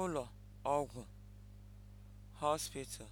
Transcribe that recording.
ụlọ ọgwụ (hospital)